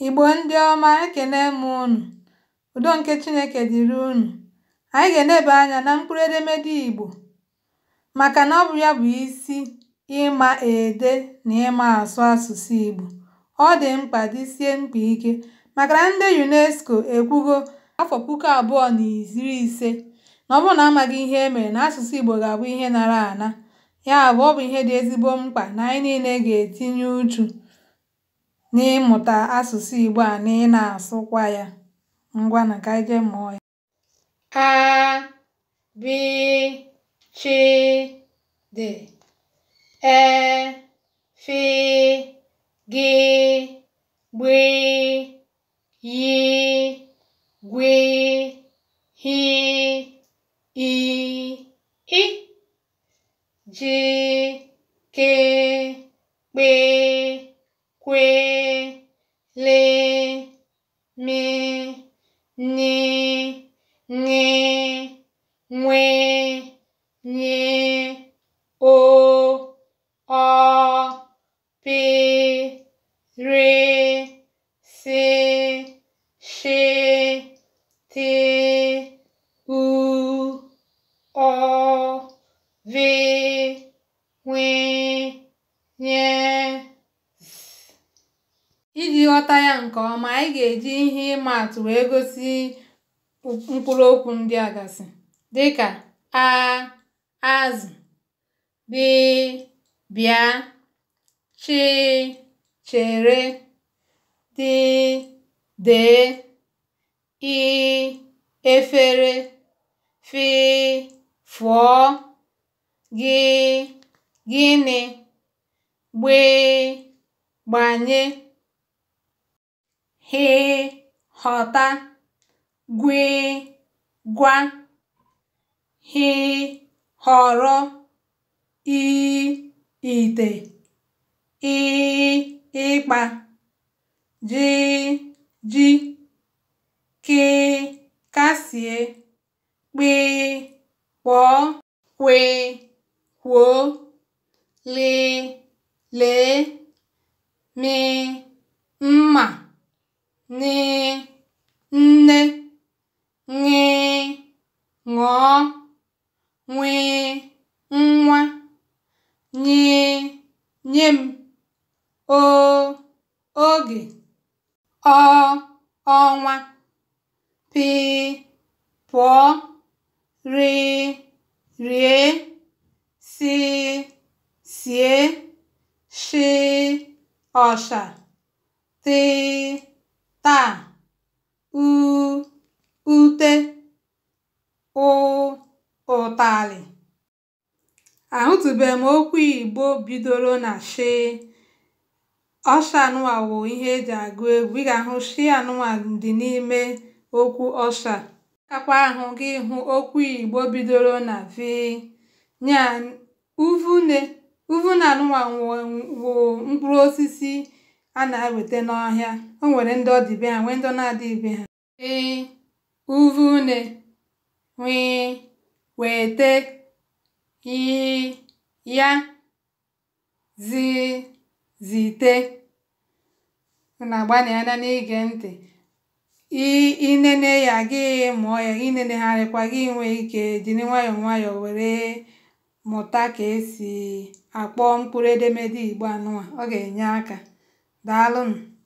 Igbo ndị ọma ekene m unu. Udo nke Chineke dịrị unu. Anyị ga-eneba anya na mkpụrụ edemede Igbo maka na ọ bụ ya bụ isi ịma ede na ịma asụ asụsụ Igbo. Ọ dị mkpa dịsie mkpa ike maka na ndị UNESCO ekwugo afọ puku abụọ na iri ise na ọ bụrụ na amaghị ihe e mere na asụsụ Igbo ga-abụ ihe nara ana. Ya bụ, ọ bụ ihe dị ezigbo mkpa na anyị niile ga-etinye uchu n'ịmụta asụsụ Ìgbò a na ị nà-àsụkwa yȧ. Ngwanụ kà ànyị jee mụọ ya. A B Ch D E F G Gb Y Gw H I I J K Kp Kw nye, nye, mwe, nye, o, o, re, se, she, te, u, o, ve, wen. nke ọma, anyị ga-eji ihe atụ wee gosi okwu ndị a gasị dịka aazụ, (azụ), “bí” (bịa), “chị” (chere), dị (dee), (efere), (fụọ), (gịnị), (gbanye) hị họta gwe gwa hị họrọ ị ite ịkpa ji ji kị kasìe kpị kpọọ lị mị n, nne, ṅ, ṅụọ, nwị nwa, ny, nye m, o, oge, ọ, ọnwa, p, pụọ, r, rie, si sie, shi ọsha, t taa u ute ụ ụtalị ahụtụbeghị m okwu igbo bidoro na sh anụwa wụ ihe eji agụ egwu ị ga-ahụ shi anụwa dị n'ime okwu ọsha akwa ahụ gị hụ okwu igbo bidoro na v nya uvune na anụwa wụ mkpụrụ osisi a na eweta n'ọhịa o nwere ndị ọ ha nwee ndị na-adịghị be ha e, uvu une wịị wete ya zi na agbanị anya n'ige ntị ị ya gị mụọ ya inenegharịkwa gị nwe ike jiri nwayọọ nwayọọ were mụta ka esi akpọ mkpụrụ edemede Igbo anụnwa ọ ga-enye aka Dalın.